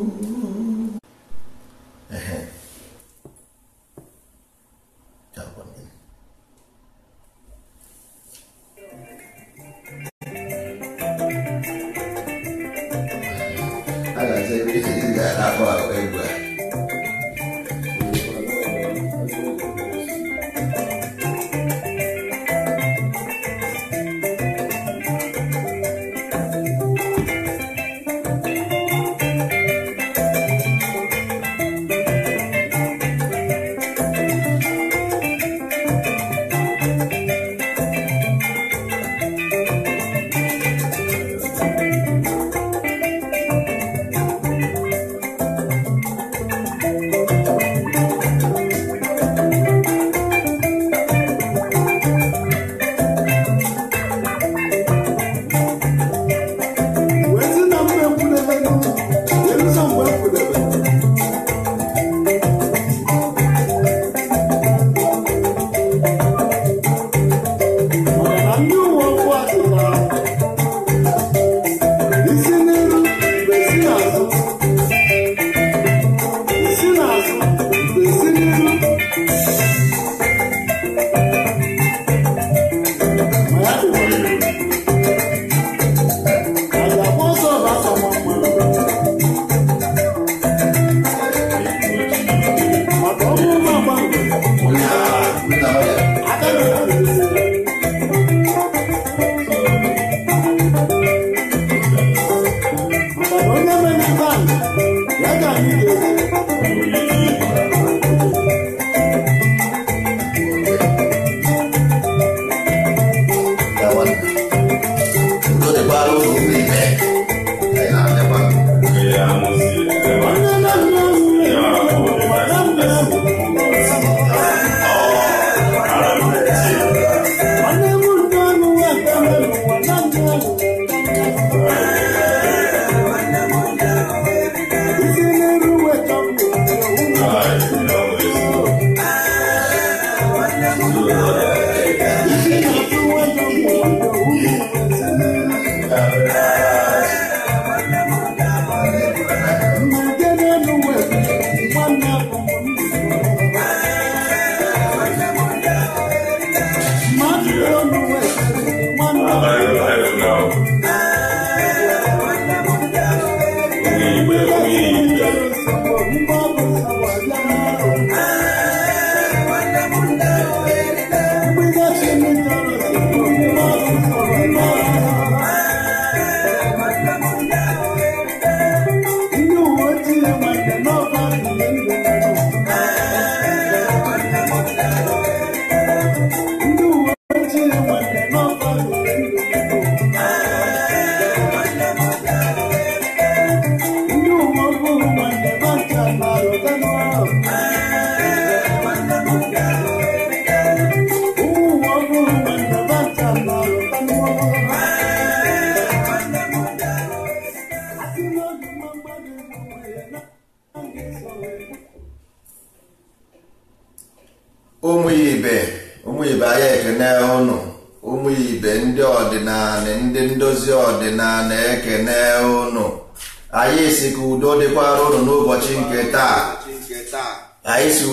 Mm-hmm.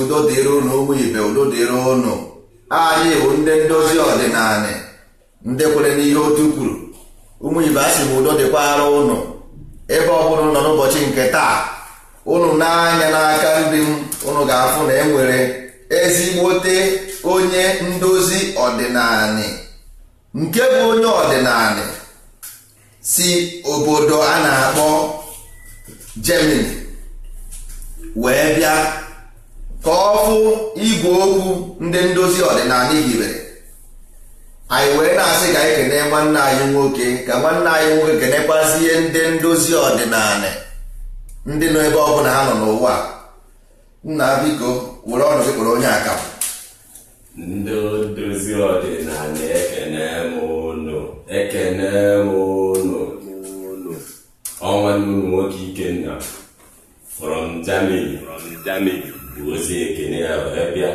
udo dịrị ụnụ ụmụ ibe udo dịrị ụnụ anyị bụ ndị ndozi ọdịnala ndị kwere n'ihe otu kwuru ụmụ ibe a sị m udo dịkwara ụnụ ebe ọ nọ n'ụbọchị nke taa ụnụ n'anya n'aka nri m ụnụ ga-afụ na enwere ezigbote onye ndozi ọdịnala nke bụ onye ọdịnala si obodo a na-akpọ Germany wee bịa ka ọ fụ igwe okwu ndị ndozi ọdịnala hibere anyị wee na-asị ka anyị kene nwanne anyị nwoke ka nwanne anyị nwoke kenekwazie ndị ndozi ọdịnala ndị nọ ebe ọ bụla ha nọ n'ụwa nna biko were ọnụ gị kpọrọ onye aka ndị ndozi ọdịnala m ọnwa unu nwoke Ikenna from Germany from Germany ozi ekene ya were bịa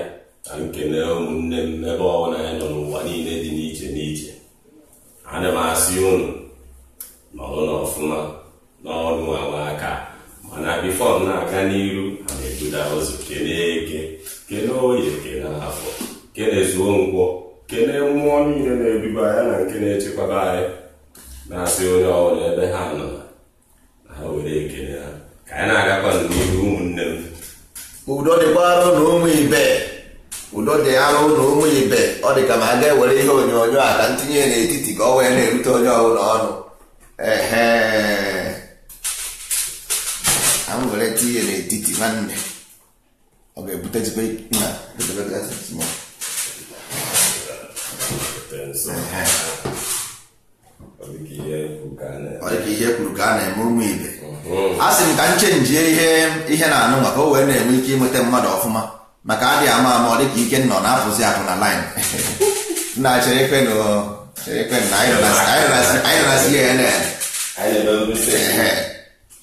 na nkene ụmụnne m ebe ọbụla ya nọ n'ụwa niile dị n'iche n'iche ana m asị unu nọrụ n'ọfụma n'ọrụ awa aka mana bifọ m na-aga n'iru a na-ebuda ozi kene eke kene oye kene afọ kene zuo nkwọ kene mmụọ niile na-ebiba ya na nke na-echekwaba anyị na-asị onye ọbụla ebe ha nọ ha were ekene ha ka anyị na-agakwa n'ihu ụmụnne m udo dịkwara ụnụ ụmụ ibe udo dị arụ ụnụ ụmụ ibe ọ dị ka ma a ga-ewere ihe onyonyo a ka ntinye n'etiti ka ọ wee na-erute onye ọbụla ọnụ ehe were tinye n'etiti nwanne ọ ga-ebutezikwa ọ dịka ihe kwuru ka a na-eme ụmụ ibe a sị m ka m chenjie ihe ihe na anụ maka o wee na-enwe ike ịnweta mmadụ ọfụma maka adịghị ama ama ọ dịka ike nọ na-apụzi akụ na line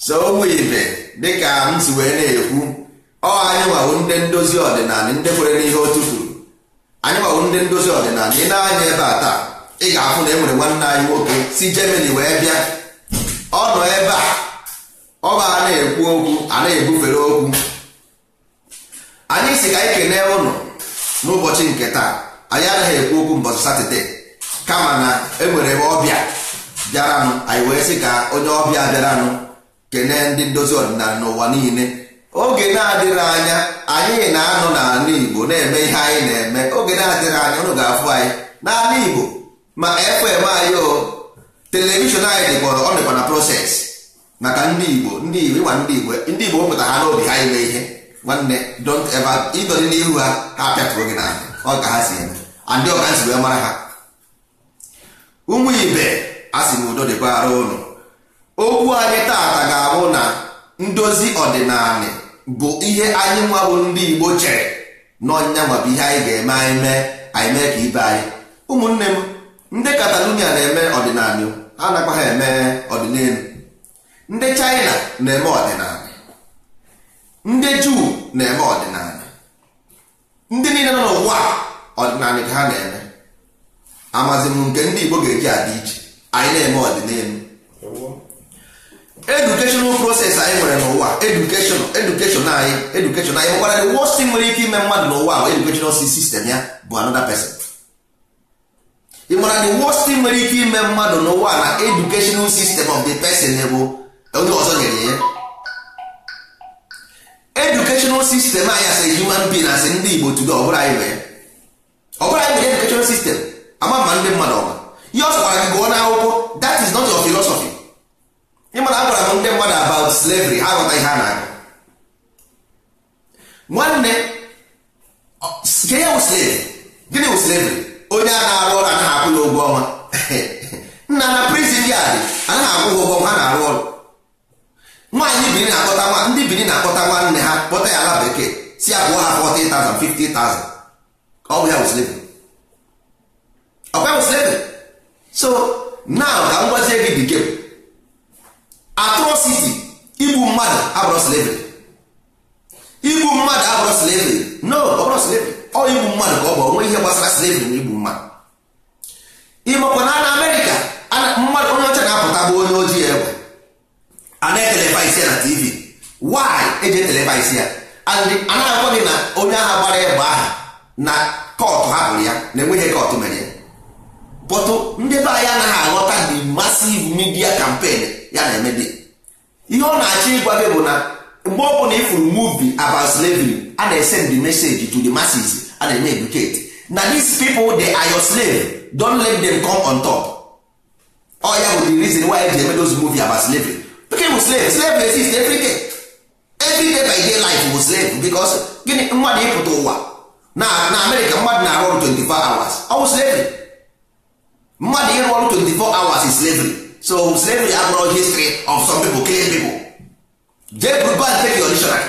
so ụmụ ibe dịka m si wee na-ekwu ọ anyị nwawo ndị ndozi ọdịnala ndị kwere n'ihe otu kwuru anyị nwawo ndị ndozi ọdịnala ị na-anya ebe a taa ị ga-afụ na e nwere nwanne anyị nwoke si Germany wee bịa ọ nọ ebe a ọ bụ a na-ekwu okwu a na-ebufere okwu anyị si ka anyị kene ụlọ n'ụbọchị nke taa anyị anaghị ekwu okwu mbọchị satọde kama na enwere ebe ọbịa bịaranụ anyị wee sị ka onye ọbịa bịaranụ kenee ndị ndozi ọdịnala n'ụwa niile oge na-adịrị anya anyị na-anọ n'ala Igbo na-eme ihe anyị na-eme oge na-adịrị anya ụnụ ga-afụ anyị n'ala Igbo ma FM anyị o telivishọn anyị dịkọrọ ọ dịkwa na proses maka ndị igbo ndị igbo ịgwa ndị igbo ndị igbo wepụta ha n'obi ha ime ihe nwanne don't ever ịdọrị n'ihu ha ha pịatụrụ gị n'ahụ ọ ka ha si eme andị ọka si wee mara ha ụmụ ibe a sị na udo dịkwa ara ụnụ okwu anyị taata ga-abụ na ndozi ọdịnala bụ ihe anyị nwa bụ ndị igbo chere n'ọnya nwabụ ihe anyị ga-eme anyị mee anyị mee ka ibe anyị ụmụnne m ndị katalonia na-eme ọdịnala ha nakwa ha eme ọdịnelu ndị China na-eme ọdịnala ndị Juu na-eme ọdịnala ndị niile nọ n'ụwa ọdịnala ka ha na-eme amazi m nke ndị Igbo ga-eji adị iche anyị na-eme ọdịnelu edukeshonal proses anyị nwere n'ụwa edukeshon edukeshon anyị edukeshon anyị nkwara the worst thing nwere ike ime mmadụ n'ụwa bụ edukeshonal sistem ya bụ another pesin ị mara the worst thing nwere ike ime mmadụ n'ụwa na educational system of the person bụ onye ọzọ nyere ya educational system anyị asị human being asị ndị Igbo tudo ọbụla anyị nwere ọbụla anyị nwere educational system ama ma ndị mmadụ ọma ihe ọsọ gwara gị gụọ n'akwụkwọ that is not your philosophy ịmana agwara m ndị mmadụ about slavery ha ghọta ihe a na-agụ nwanne ke ya slave gịnị wụ slavery onye a na-arụ ọrụ anaghị akwụ ya ụgwọ ọnwa nna na prison dị anaghị akwụ ụgwọ ọnwa ha na-arụ ọrụ nwaanyị biri na-akpọta nwa ndị biri na-akpọta nwanne ha kpọta ya ala bekee si abụọ ha 40,000 50,000 ọ bụ ya bụ slavery ọ bụ slavery so now ka m gwazie gị bekee atrocity igbu mmadụ abụrụ slavery igbu mmadụ abụrụ slavery no ọ bụrụ ọ igbu mmadụ ka ọ bụ onwe ihe gbasara slavery na igbu mmadụ ịmakwa na na Amerịka mmadụ onye ọcha na-apụta bụ onye ojii egbe a na-etelevaisi ya na tv why eji etelevaisi ya anaghị agwa gị na onye agha gbara ya egbe aha na kọtụ hapụrụ ya na enweghị kọtụ mere ya bọtụ ndị be anyị anaghị aghọta the massive media campaign ya na-emebi ihe ọ na-achọ ịgwa gị bụ na mgbe ọ bụla ifuru movie about slavery a na-esend the message to the masses a na-eme educate na these people they are your slave don't let them come on top ọ ya bụ the reason why eji eme those movie about Nke bụ slave slave na-exist every day every day by day life bụ slave because gịnị mmadụ ịpụta ụwa na na Amerịka mmadụ na-arụ ọrụ 24 hours ọ bụ slavery mmadụ ịrụ ọrụ 24 hours is slavery so slavery abụrụ history of some people killing people jee go and take your dictionary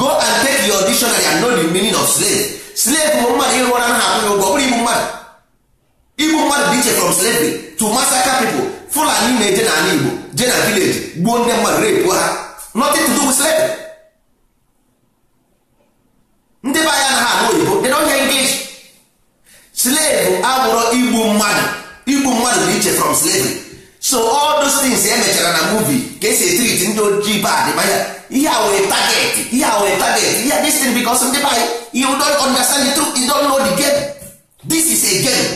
go and take your dictionary and know the meaning of slave slave bụ mmadụ ịrụ ọrụ na akwụ ya ụgwọ ọ bụrụ igbu mmadụ igbu mmadụ dị iche from slavery to massacre people fulani na-eje n'ala igbo je na vileji gbuo ndị mmadụ repuo ha nothing to do with ndị be anya na ha abụ oyibo they don't english slave abụrụ igbu mmadụ igbu mmadụ dị iche from slavery so all those things emechara na movie ka esi etrit ndị ojii bad manya ihe a wee ihe a wee ihe this thing because ndị be anyị you don't understand the truth you don't know the game this is a game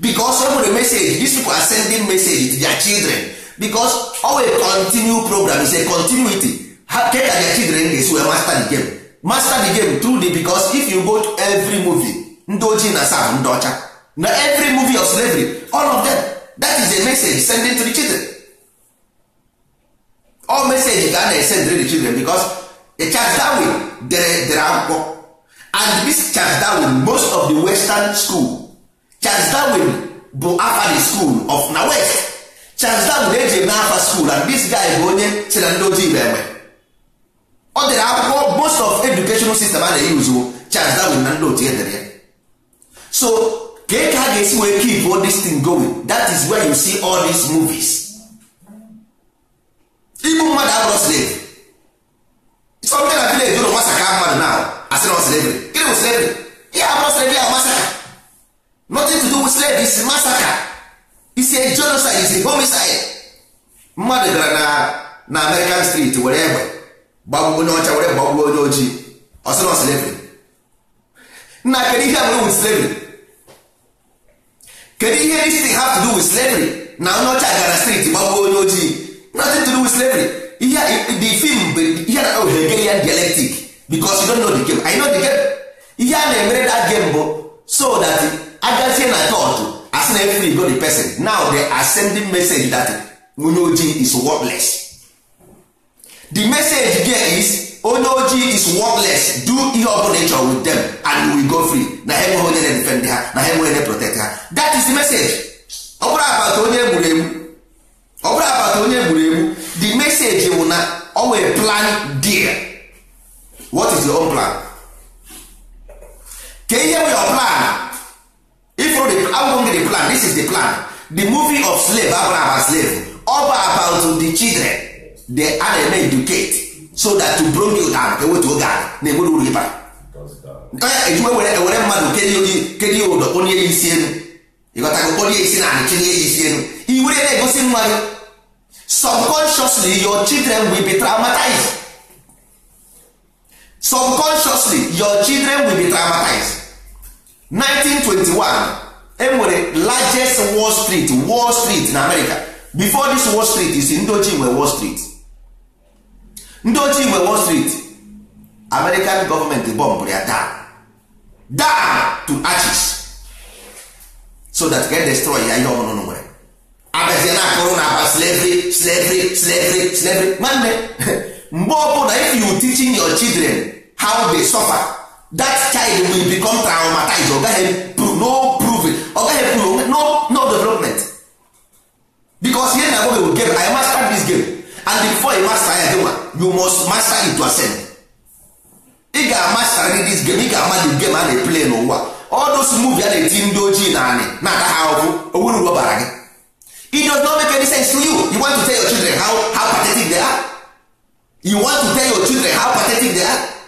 because ọ the message these people are sending message to their children because ọ wee continue program is a continuity ha ke ka their children ga-esi wee master the game master the game through the because if you go to every movie ndị ojii na sam ndị ọcha na every movie of slavery all of them that is a message sending to the children all message ga a na-esend to the children because a Charles Darwin dere dere akwụkwọ and this Charles Darwin most of the western schools. Charles Darwin bụ afa the school of na west Charles Darwin eji eme afa school and this guy bụ onye si na ndị ojii na-enwe ọ dịrị akwụkwọ most of educational system a na-eyuzu Charles Darwin na ndị otu edere ya so ka ka ha ga-esi wee keep all this thing going that is where you see all these movies igbu mmadụ abụrụ slave something na village ụlọ masaka mmadụ na asịrị slavery gịnị bụ slavery ihe abụrụ slavery ya masaka nothing to do with slave is massacre is a genocide is a homicide mmadụ gara na na American street were egbe gbagbuo onye ọcha were gbagbuo onye ojii ọsịrọ slavery na kedu ihe nwere with slavery kedu ihe this thing have to do with slavery na onye ọcha gara street gbagbuo onye ojii nothing to do with slavery ihe the film ihe na ya oh, dialectic because you don't know the game I know the game ihe a na-emere that game bụ so that agazie na chọọchị asị na efri go the person now they ascending message that onye ojii is worthless the message there is onye ojii is worthless do ihe ọbụla ị chọrọ with them and we go free na ha enweghị onye na-defend ha na ha enweghị onye protect ha that is the message ọ bụrụ abata onye egburu egbu ọ bụrụ abata onye egburu egbu the message bụ na ọ nwere plan dear what is your own plan ka ihe bụ your plan if the album be the plan this is the plan the movie of slave abụrụ aba slave ọ bụ about the children they a na-eme educate so that to bring you down ka ewetu oge ala na enwere uru ịba ejikwa were ewere mmadụ kedu ya ụdọ onye ya isi elu ịghọtago onye isi na anị chinye ya isi elu iwere na-egosi nwa gị subconsciously your children will be traumatized subconsciously your children will be traumatized 1921 enwere largest wall street wall street na america before this wall street isi ndị ochie war wall street ndị war nwe wall street american gọọmenti bomb ya daa daa to arches so that get destroy ya ihe ọmụnụnụ nwere abazie na akụrụ na aba slavery slavery slavery slavery nwanne mgbe ọbụla if you teaching your children how they suffer that child will become traumatized ọ gaghị no prove ọ no no development because here na agwaghe game i master this game and before you master ya dịnwa you must master it to ascend ị ga-amaster this game ị ga-ama the game a na-eplay n'ụwa all those movie a na-eti ndị ojii na anị na-ata ha ahụhụ owuru ụgwọ bara gị it does not make any sense to you you want to tell your children how, how pathetic they are you want to tell your children how pathetic they are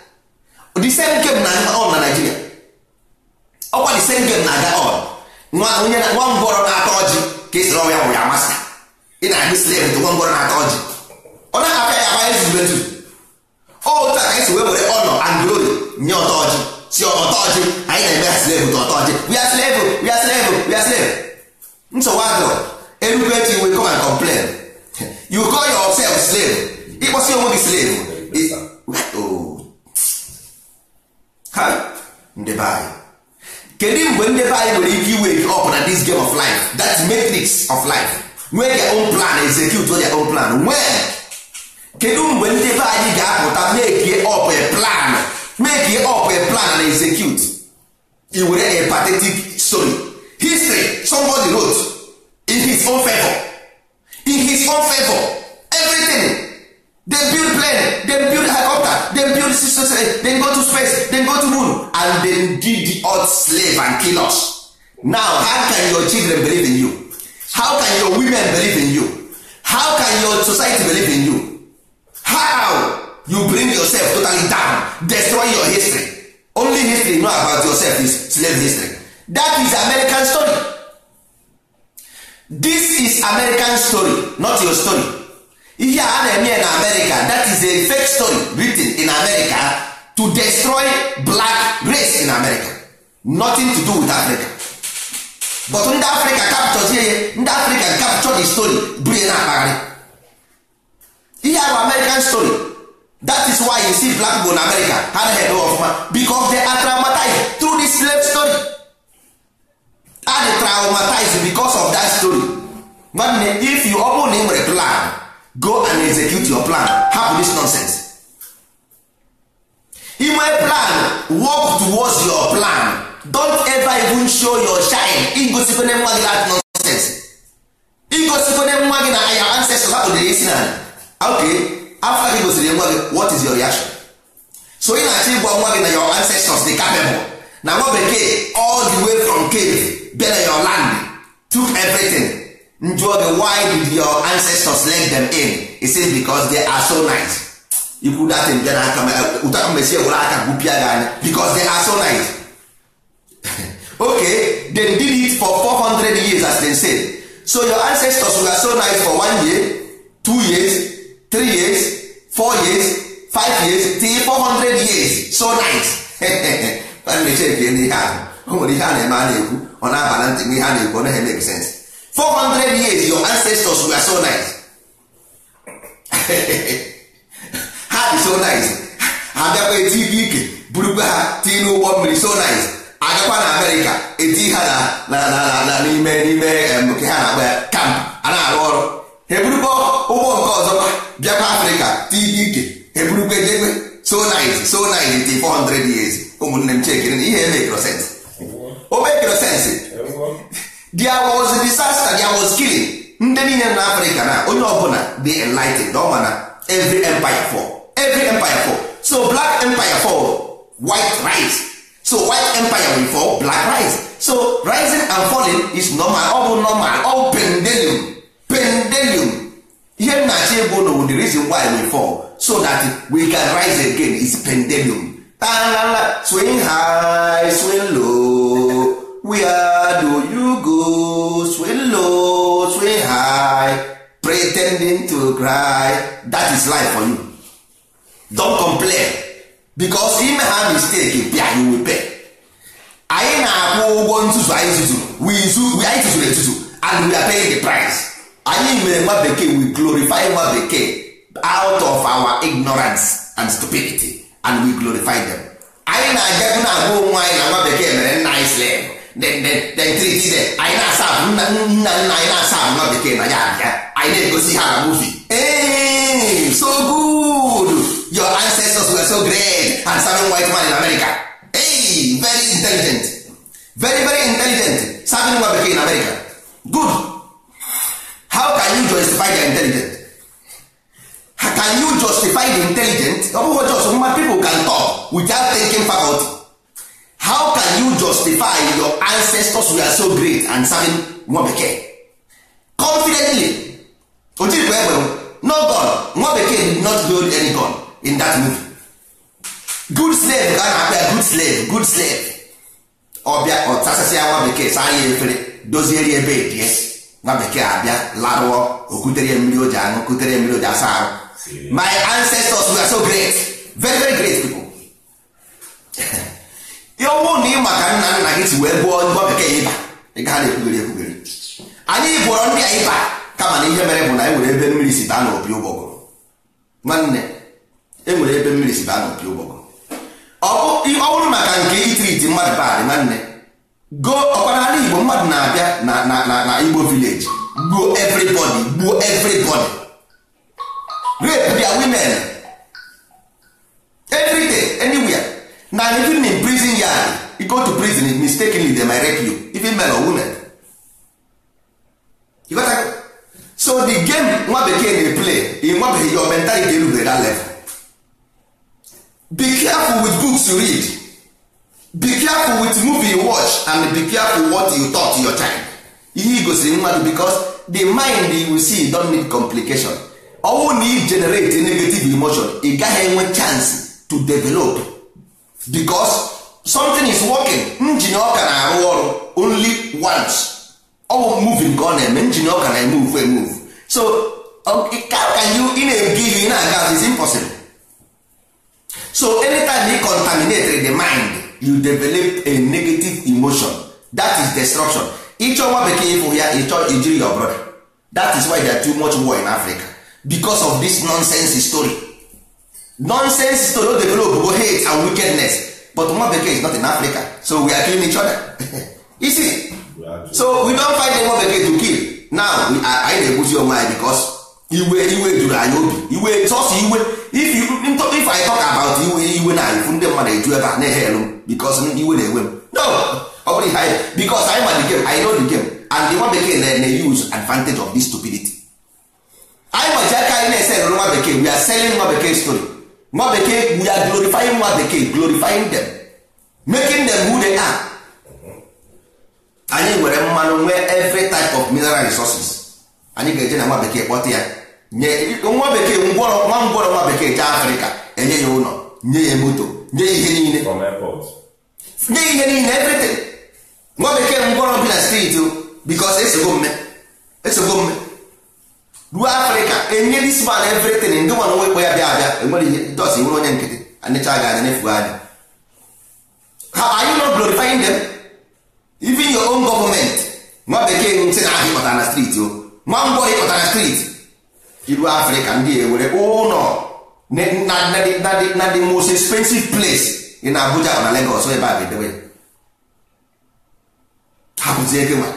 the same game na on na Nigeria ọkwa the same game na-aga on nwa na nwa ngwọrọ na atọ ọjị ka esiri ọnwa ya ya amasị ị na-ahụ slave nwa ngwọrọ na atọ ọjị ọ na-akpa ya agba ezigbo etu otu a ka esi wee were ọnọ and nye ọtọ ọjị si ọtọ ọjị anyị na-eme ya slave ka ọtọ ọjị we are slave we are slave we are slave nsogbu adịrọ erube etu iwe come and complain you call yourself slave ịkpọsi onwe gị slave ndị be kedu mgbe ndị be anyị nwere ike iwake up na this game of life that matrix of life nwee their own plan execute their own plan nwee kedu mgbe ndị be anyị ga-apụta make up a plan make up a plan and execute i were a pathetic story history somebody wrote in his own favor in his own favor everything they to space then go to space then go to moon and then give the earth slave and kill us now how can your children believe in you how can your women believe in you how can your society believe in you how you bring yourself totally down destroy your history only history know about yourself is slave history that is American story this is American story not your story ihe a na-eme na America that is a fake story written in America to destroy black race in America nothing to do with Africa but ndị Africa capture ihe ndị Africa capture the story bụrụ na akpagharị ihe a American story that is why you see black people in America ha na eme ọfụma because they are through this slave story and traumatized because of that story nwanne if you ọ bụrụ na ị nwere plan go and execute your plan hapụ this nonsense inwe plan work towards your plan don't ever even show your shine igosikwane nwa gị that nonsense igosikwane nwa gị na your ancestors hapụdere isi na okay after gị gosiri nwa gị what is your reaction so ị na-achọ ịgwa nwa gị na your ancestors dị capable na nwa bekee all the way from cave bịa your land took everything njụọ gị why did your ancestors let them in he said because they are so nice ikwu datin bịa n'aka ụtara mmesi ewere aka gwupịa gị anya because they are so nice okay they did it for 400 years as they said so your ancestors were so nice for one year two years three years four years five years till 400 years so nice ọ nwere ihe a na-eme a na-ekwu ọ na-aba na ntị ihe a na-ekwu ọ naghị make sense 400 years your ancestors were so nice ha dị so nice ha bịakwa eti ibe ike burukwa ha tii n'ụgbọ mmiri so nice agakwa na amerịka eti ha na n'ime n'ime nke ha na ha ya kamp a na-arụ ọrụ ha eburukwa ụgbọ nke ọzọkwa bịakwa afrịka tii ibe ike ha eburukwa ha so nice so nice ha 400 years ụmụnne m chekere na ihe ha ha ha there was disaster there was killing ndị niile na africa na onye ọbụla dị enlightened ọ ma every empire fall every empire fall so black empire fall white rise so white empire will fall black rise so rising and falling is normal ọ bụ normal ọ pendelium pendelium ihe m na-achọ ịbụ the reason why we fall so that we can rise again is pendulum so swing high swing low where do you go sway low sway high pretending to cry that is life for you don't complain because ime ha mistake bịa you will pay anyị na-akwụ ụgwọ ntuzu anyị zuzuru we zuzuru anyị tuzuru etuzu and we are paying the price anyị mere nwa bekee we glorify nwa bekee out of our ignorance and stupidity and we glorify them anyị na-agabu na-agwa onwe anyị na nwa bekee mere nna anyị slave triti de anyị na-asa nna nna anyị na-asa nọ bekee na ya abịa anyị na-egosi ha na muvi ee so good your ancestors were so great and serving white man in America hey very intelligent very very intelligent serving nwa bekee in America good how can you justify the intelligent how can you justify the intelligent ọ bụghị just mma people can talk without taking faculty how can you justify your ancestors were so great and serving nwa bekee confidently o jirikwa egbe no god nwa bekee did not build any god in that movie good slave ka a na-akpọ ya good slave good slave ọbịa ọtasasị ya nwa bekee saa ya efere dozieri ebe edies nwa bekee abịa larụọ okutere ya mmiri o aṅụ kutere mmiri asa ahụ my ancestors were so great very very great people ya na ịma ka nna nna gị si wee gụọ gụọ bekee ịba ị gaa na-ekwugere ekwugere anyị bụrọ ndị a ịba kama na ihe mere bụ na enwere ebe mmiri si baa n'opi ụgbọgụrụ nwanne enwere ebe mmiri si baa n'opi ụgbọgụrụ ọ bụrụ maka nke itriti mmadụ badị nwanne go ọkwana igbo mmadụ na-abịa na igbo vileji gbuo everybody gbuo everybody rape their women everyday anywhere na even in prison yard you go to prison if mistakenly dem might you even men or women you got that? so the game nwa bekee play in nwa bekee your mentality that level be careful with books you read be careful with movie you watch and be careful what you talk to your e ihe igosiri mmadụ because the mind you see don need complication ọnwụ na i generate negative emotion ị gaghị enwe chance to develop because something is working njin ọka na-arụ ọrụ only once ọ bụ moving ka ọ na-eme eh? njin ọka na-emove emove eh, so um, can you in a give in na-aga is impossible so anytime you contaminate the mind you develop a negative emotion that is destruction ịchọ nwa bekee ịfụ ya ịchọ ijiri your brother that is why there are too much war in Africa because of this nonsense story nonsense story o develop go hate and wickedness but nwa bekee is not in africa so we are killing each other you see so we don find nwa bekee to kill now anyị na-egbuzi onwe anyị because iwe iwe juru anyị obi iwe sọsọ iwe if you if i talk about iwe iwe na ifu ndị mmadụ eju ebe a na-ehelu m because iwe na-ewe m no ọ bụrụ ihe anyị because anyị ma the game I know the game and the nwa bekee na-ene use advantage of this stupidity anyị nwaji aka anyị na-ese nwa bekee we are selling nwa bekee story nwa bekee we are glorifying nwa bekee glorifying them making them who they are anyị nwere mmanụ nwee every type of mineral resources anyị ga-eje na nwa bekee kpọta ya nye nwa bekee ngwọrọ nwa ngwọrọ nwa bekee jee afrịka enye ya ụlọ nye ya moto nye ihe niile nye ihe niile everything nwa bekee ngwọrọ bi na steeti bikos esogbo mme esogbo mme ruo afrịka enye this man everything ndị nwana nwekwe ya bịa abịa enwere ihe dos nwere onye nkịtị anịcha gị anya nefuo anya ha are you not glorifying them even your own nwa bekee ntị na ahụ ịpụtara na street o nwa ngwọ ịpụtara na street iru afrịka ndị were ụlọ na the most expensive place dị na abuja na legos ebe a ga-edewe ha bụzie gị nwa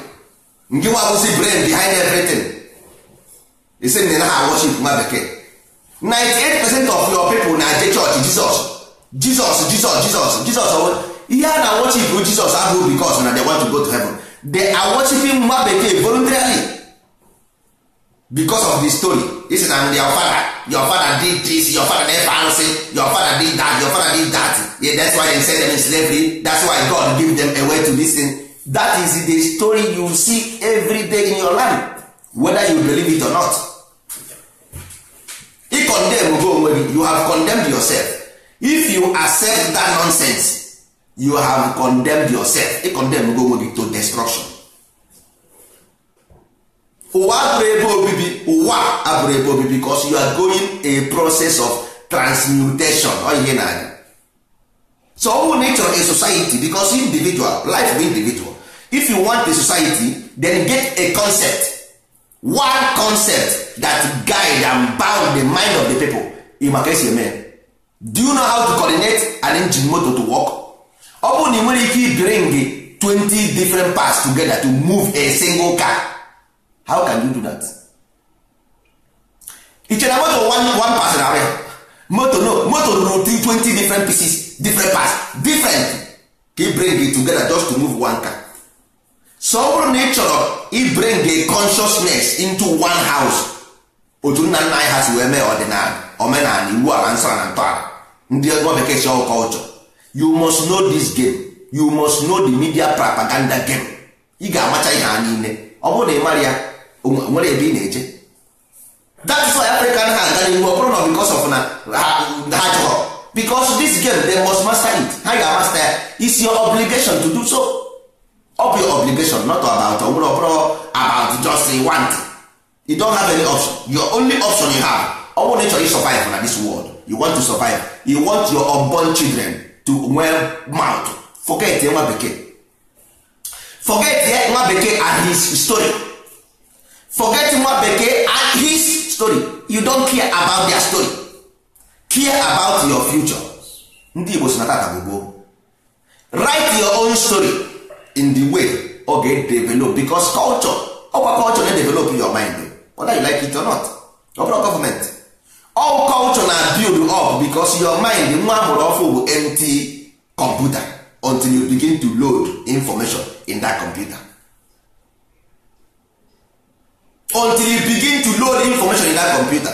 ngị nwa bụzi e say na ha worship nwa bekee 98 percent of your people na-eje jesus jizọs jizọs jizọs jizọs jizọs ihe a na worship jizọs abụghị because na they want to go to heaven the are worshiping nwa bekee voluntarily because of the story is na your father your father did this your father never answer your father did that your father did that yeah, that's why they send them in slavery that's why God give them a way to listen that is the story you see every day in your life whether you believe it or not I condemn go onwe gị you have condemned yourself if you accept that nonsense you have condemned yourself I condemn go onwe gị to destruction ụwa abụrụ ebe obibi ụwa abụrụ ebe obibi because you are going a process of transmutation oyihe na anya so ọ bụrụ na a society because individual life bụ individual if you want a society then get a concept one concept that guide and bound the mind of the people in maka esi eme do you know how to coordinate an engine motor to work ọ bụrụ na ị nwere ike ibring 20 different parts together to move a single car how can you do that? iche moto one person pass na no moto no moto rụrụ 20 different pieces different parts different ka bring it together just to move one car so ọ bụrụ na ị chọrọ ibring a consciousness into one house otu nna nna anyị ha si wee mee ọdịnala omenala iwu ala nsara na ntọala ndị ọgọ bekee si ọkọlchọ you must know this game you must know the media propaganda game ị ga-amacha ihe ha niile ọ bụrụ na ị mara ya nwere ebe ị na-eje is why african ha aga n'ihu ọ bụrụ na because of na ha chọrọ because this game they must master it ha ga-amasta ya is your obligation to do so Up your obligation not about ọ bụrụ ọbụrụ about just a want you don't have any option your only option you have ọ bụrụ na ị chọrọ survive na this world you want to survive you want your unborn children to well mouth forget nwa bekee forget nwa bekee and his story forget nwa bekee and his story you don't care about their story care about your future ndị Igbo si na tata bụ gboo write your own story in the way ọ ga develop because culture ọkwa culture na-edevelop your mind whether you like it or not ọ all culture na build up because your mind nwa mụrụ ọfụ bụ empty computer until you begin to load information in that computer until you begin to load information in that computer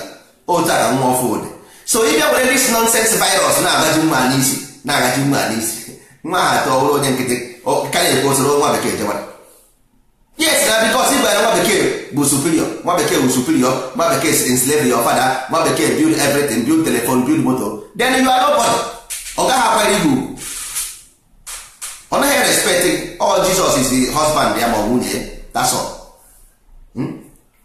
otu a nwa ọfụ ụdị so ị bịa were this nonsense virus na-agaji nwa n'isi na-agaji nwa n'isi nwa ha ọhụrụ onye nkịtị ka ekwu osoro nwa bekee jewara yes na bikos ịbara nwa bekee bụ superior nwa bekee bụ superior nwa bekee si enslave your father nwa bekee build everything build telephone build moto then you are nobody ọ gaghị akwanyere gị ugwu ọ naghị respect all Jesus is husband ya ma ọ nwunye ya that's all hmm?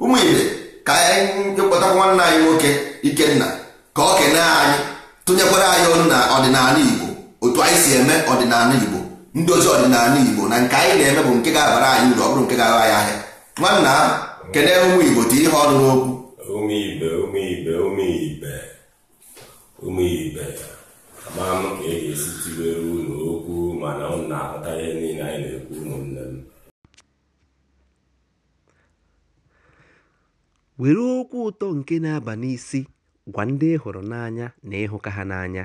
ụmụ ibe ka anyị kpọtakwa nwanne anyị nwoke ikenna ka ọ kenee anyị tụnyekwara anyị ọnụ na ọdịnala Igbo otu anyị si eme ọdịnala Igbo ndị ozi ọdịnala igbo na nke anyị na-eme bụ nke ga-abara anyị uru ọ nke ga-agha anyị ahịa nwanna kedu ụmụ igbo dị ihe ọrụ n'okwu ụmụ ibe ụmụ ibe ụmụ ibe mana were okwu ụtọ nke na-aba n'isi gwa ndị ị hụrụ n'anya na ịhụka ha n'anya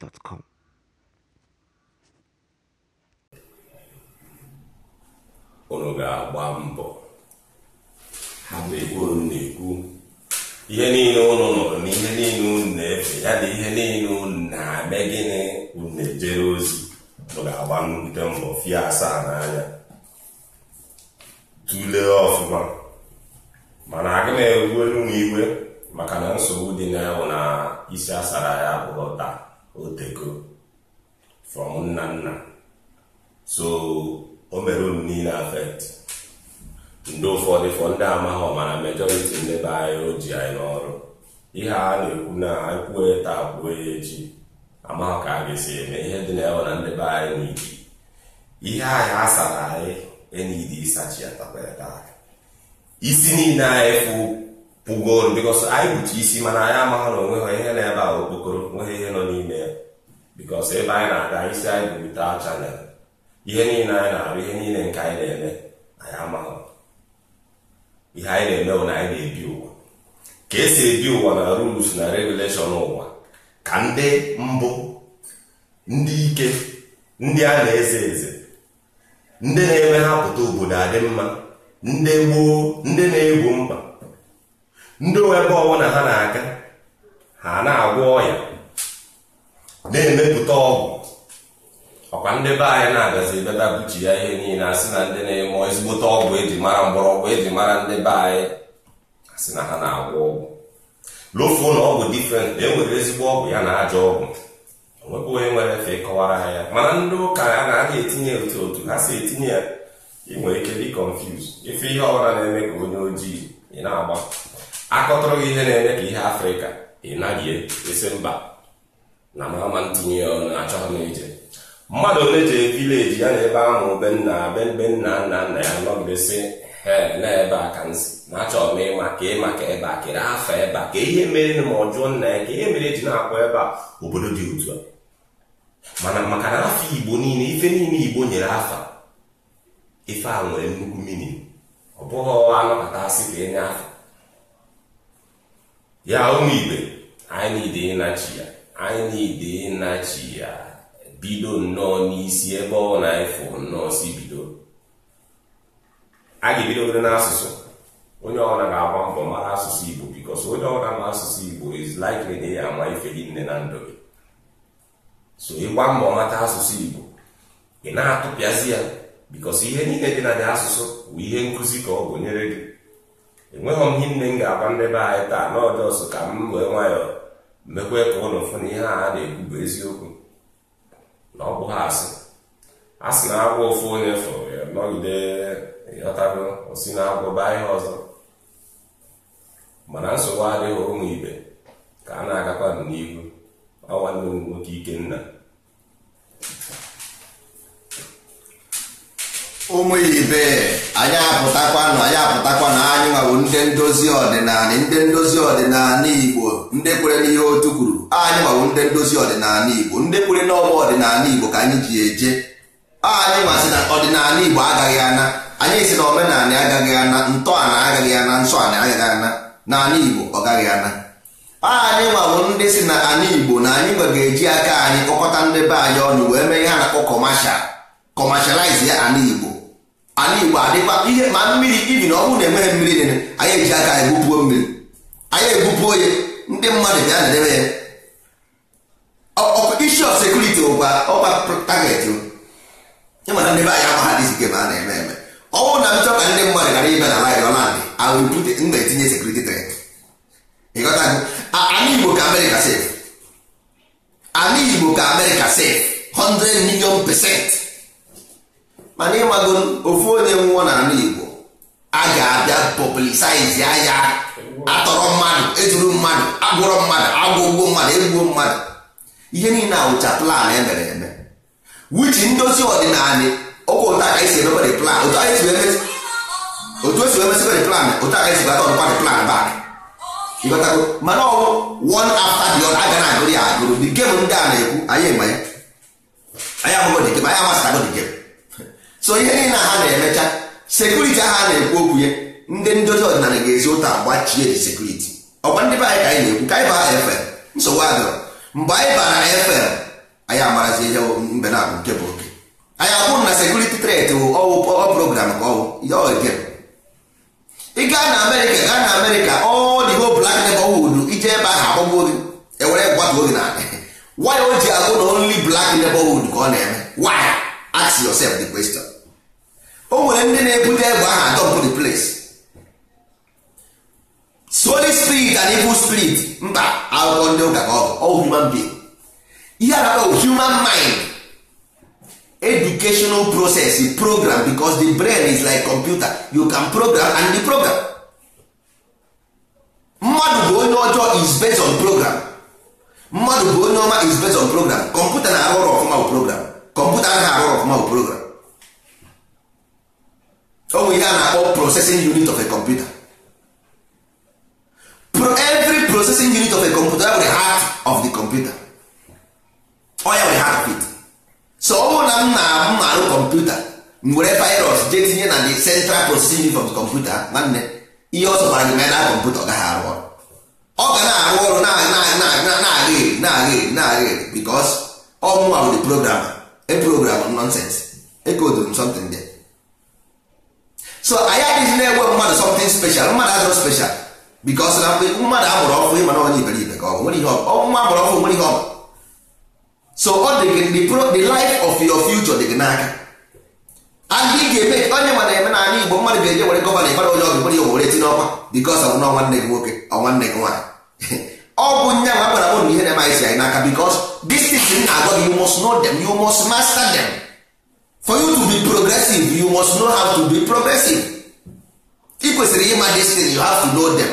gmail.com. unu ga-agba mbọ hapụ ebe unu na-ekwu ihe niile unu nụrụ na ihe niile unu na-efe ya na ihe niile unu na-eme gịnị unu na-ejere ozi unu ga-agba nnukwu mbọ fie asaa n'anya tụlee ọfụma mana na-egwu elu m igwe maka na nsogbu dị na isi asara ya bụrụ taa otego from nna nna so o mere unu niile afet ndị ụfọdụ fọ ndị amaghị ọmara majority ndị be anyị o ji anyị n'ọrụ ihe a na-ekwu na kwue taa kwuo ya echi amaghị ka a ga-esi eme ihe dị na ewe na ndebe anyị n'iji ihe anyị asara anyị enyidi ịsachi ya taa isi niile anyị fụ pụgoro bikọs anyị kpuchi isi mana anyị amaghị na onweghị ihe na-ebe a okpokoro nweghị ihe nọ bikos ebe anyị na-aga isi anyị bụ wita chanel ihe niile anyị na-arụ ihe niile nke anyị na-eme anyị amaghị ihe anyị na-eme bụ na anyị na-ebi ụwa ka esi ebi ụwa na rules na regulation ụwa ka ndị mbụ ndị ike ndị a na-eze eze ndị na-eme ha pụta obodo adị mma ndị gboo ndị na-egwu mkpa ndị ebe ọbụla ha na-aga ha na-agwọ ọya na-emepụta ọgwụ ọkwa ndị be anyị na-abịazi bebe buchi ya ihe niile asị na ndị na-eme ezigbote ọgwụ eji mara mgbọrọgwụ eji mara ndị be anyị asị na ha na-agwọ ọgwụ lofuo na ọgwụ difrent na e enwere ezigbo ọgwụ ya na ajọ ọgwụ onwebụ onye nwere efe ịkọwara ha ya mana ndị ụka ya na-aga etinye otu otu ha si etinye ya inwere ike dị confuse ife ihe ọbụla na-eme ka onye ojii ị na-agba akọtụrụ gị ihe na-eme ka ihe afrịka ị naghị e, mba na mahama ntinye ya na-achọ m ije mmadụ ole jee vileji ya na ebe ahụ benna nna be nna nna nna ya nọgidesi he na ebe a ka na achọrọ m ịma ka ịma ka ebe a kere afọ ebe a ka ihe mere ma ọ jụọ nna ya ka ihe mere e ji na-akwa ebe a obodo dị otu a mana maka na afọ igbo niile ife niile igbo nyere afa ife a nwere nnukwu mmiri ọ bụghị anọpụta asị ka enye afọ ya ụmụ igbe anyị niile ịnachi ya anyị niile ịnachi ya bido nnọọ n'isi ebe ọ na-efu nnọọ si bido a ga-ebidogoro n'asụsụ onye ọbụla ga-agba mbọ mara asụsụ Igbo bikos onye ọbụla ma asụsụ Igbo is likely na ya ama ife gị nne na ndụ gị so ịgba mbọ mata asụsụ Igbo ị na-atụpịazi ya bikos ihe niile dị na dị asụsụ bụ ihe nkụzi ka ọ bụ gị enweghị m ihe nne m ga-agwa ndị be anyị taa na ọjọọ ka m wee nwayọọ mekwe ka ụnụ fụ na ihe a na-ekwu bụ eziokwu na ọ asị a sị na agwọ ụfụ onye fụrụ ya e nọgide ịghọtago osi na agwọ baa ihe ọzọ mana nsogbu adịghị ụmụ ibe ka a na-agakwa n'ihu ọ nwanne m nwoke nna. ụmụ ibe anyị apụtakwanụ anyị apụtakwanụ anyị nwawo ndị ndozi ọdịnala ndị ndozi ọdịnala igbo ndị kwere n'ihe otu kwuru anyị nwawo ndị ndozi ọdịnala igbo ndị kwere n'ọgba ọdịnala igbo ka anyị ji eje anyị masị na ọdịnala igbo agaghị ana anyị si na omenala agaghị ana ntọala agaghị ana nsọ ala agaghị ana na ala igbo ọ gaghị ana anyị nwawo ndị si na ala igbo na anyị nwa ga-eji aka anyị kpọkọta ndị be anyị ọnụ wee mee ihe na-akpọ kọmashal ya ala igbo ala igbo adịkwa ihe ma mmiri ibi na ọnwụ na-enweghị mmiri niile anyị eji aka anyị egbupuo mmiri anyị egbupuo ya ndị mmadụ bịa na-edebe ya isi of sekuriti ụkwa ọkwa taget ịmana ndị be anyị ama ha dị sike ma a na-eme eme ọnwụ na m ka ndị mmadụ ghara ibe na laịrị ọla ndị awụpụte na-etinye sekuriti tret ịghọta ala igbo ka amerịka sef anyị igbo ka amerịka sef 100 million pesenti. mana ịmago ofu onye nwụọ n'ala Igbo a ga-abịa publicize ya atọrọ mmadụ ejuru mmadụ agwụrọ mmadụ agwụgwọ mmadụ egbuo mmadụ ihe niile awụcha plan emere eme wichi ndozi ọdịnala ọkwa ụta ka esi emebere plan otu esi emesịbere plan otu aka esi bata ọdụkwa plan bak ịghọtago mana ọwụ one after the other aga na agụrụ ya agụrụ dị gem ndị a na-ekwu anyị ema ya anyị ahụghị dị gem anyị amasịtago dị gem so ihe niile ha na-emecha sekuriti ahụ a na-ekwu okwu ya ndị ndozi ọdịnala ga-ezi ụta gbachie ji sekuriti ọkwa ndị be anyị ka anyị na-ekwu ka anyị baa efe nsogbu adịrọ mgbe anyị bara efe anyị amarazi ihe mbe na-abụ nke bụ oke anyị akwụrụ na sekuriti tret ọwụ program ka ọwụ ya oge ị gaa na amerịka gaa na amerịka ọ dị ho blak nebọwud ije ebe ahụ agbagbuo gị ewere gbatuo gị na waya o ji agụ na onli blak nebọwud ka ọ na-eme waya ask yourself the question o nwere ndị na-ebute egbe aha dump the place soli spirit and evil spirit mba akụkọ ndị ụka ka ọ human being ihe anaba human mind educational process is program because the brain is like computer you can program and the program mmadụ bụ onye ọjọọ is based on program mmadụ bụ onye ọma is based on program Computer na-arụ ọrụ ọfụma bụ program kọmputa na arụ ọfụma bụ program o nwere ihe a na-akpọ processing unit of a computer Pro every processing unit of a computer nwere heart of the computer ọ ya nwere heart of it so ọ bụrụ na m na m na-arụ kọmputa m virus jee tinye na the central processing unit of the computer nwanne. ihe ọ zọtara gị mee na kọmputa ọ gaghị arụ ọrụ ọ ga na-arụ ọrụ na-aga eri na-aga eri na-aga eri because ọ mụnwa bụ the programmer a program nonsense ekodrum something there so anyị adịghị na-enwe mmadụ something special mmadụ azụrụ special because na mgbe mmadụ amụrụ ọkụ ịma na onye iberibe ka ọ nwere ihe ọkụ nwa amụrụ ọkụ nwere ihe ọkụ so ọ dị gị the life of your future dị gị n'aka and ị ga-eme onye ma na-eme na anya igbo mmadụ ga-eje were gọvanọ ịbara onye ọgụ nwere ihe were etinye ọkwa ọ ọnwa nwanne gị nwoke ọ nwanne gị nwaanyị ọ bụ nya ma gwara ụnụ ihe na-emaghịzi anyị n'aka because this thing na-agwa you must know them you must master them for you to be progressive you must know how to be progressive ị kwesịrị ịma this thing you have to know them